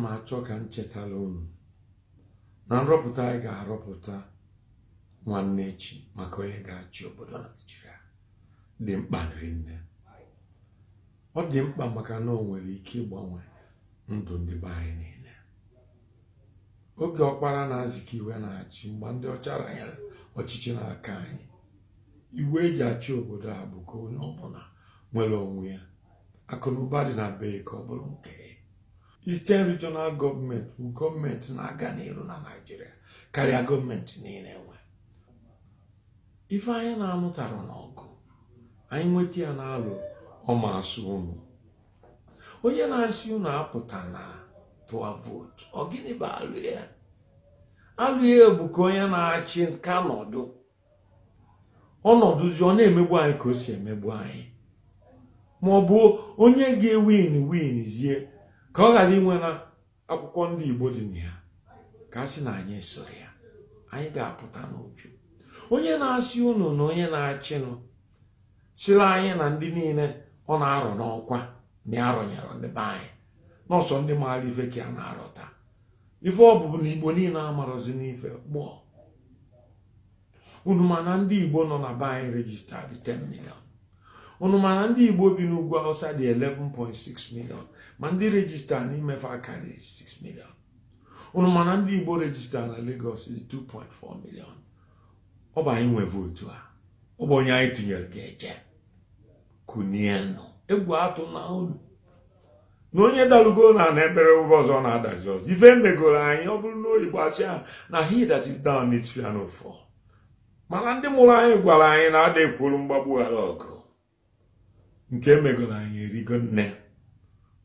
m achọ ka m chetala unu na nrọpụta anyị ga-arọpụta nwanne echi maka onye ga-achị obodo naijiria dị mkpa nne ọ dị mkpa maka na o nwere ike ịgbanwe ndụ ndị be anyị niile oge ọkpara na-azịka iwe na-achị mgbe ndị ọcha ranyere ọchịchị n'aka anyị iwe eji achị obodo a bụ ka onye ọbụla nwere onwe ya akụnụba dị na be ka ọ bụrụ nke ya Eastern Regional Government bụ gọọmenti na-aga n'iru na Naịjirịa karịa gọọmenti niile nwe ife anyị na-anụtara n'ọgụ anyị nweta ya na-alụ ọmasị ụnụ onye na-asị unu apụta na vootu ọ gịnị bụ alụ ya alụ ya bụ ka onye na-achị ka nọdụ ọnọdụzi ọ na-emegbu anyị ka o si emegbu anyị ma ọ bụ onye ga-ewin winzie. zie ka ọ ghara inwe na akwụkwọ ndị Igbo dị na ya ka a sị na anyị soro ya anyị ga-apụta n'uju onye na-asị unu na onye na-achịnụ sịrị anyị na ndị niile ọ na-arọ n'ọkwa na ya rọnyere ndị be anyị n'ọsọ ndị maara ife ka a na-arọ taa ife ọ bụ na Igbo niile amarọzi n'ife gbọọ unu ma na ndị Igbo nọ na be anyị rejistadị 10 million unu ndị igbo bi n'ugwu hausa dị 11.6 million ma ndị rejista n'imefe akarị 6 million unu mana ndị igbo rejista na lagos dị 2.4 million ọ bụ anyị nwe votu a ọ bụ onye anyị tụnyere ga-eje kunienụ egwu atụ na unu na onye dalugo na na ebere ụgbọ ọzọ na-adazi ọzọ ife megoro anyị ọ bụrụ na oyibo asị na he that is down needs piano fall mana ndị mụrụ anyị gwara anyị na ada mgbagbu ghara ọgụ nke emegoro anyị erigo nne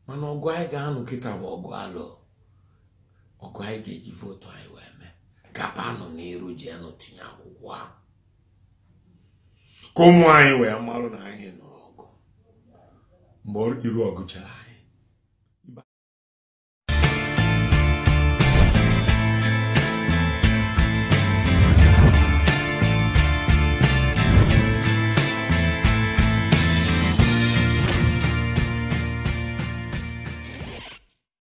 mana ọgụ anyị ga-anụ kịta bụ ọgụ alụ ọgụ anyị ga-eji votu anyị wee mee gaba nọ ji anụ tinye akwụkwọ ahụ ka ụmụ anyị wee marụ na anyị nọ ọgụ mgbe iru ọgụ chere anyị